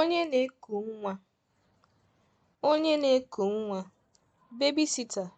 onye na-eku nwa, onye na-eku nwa, babysitter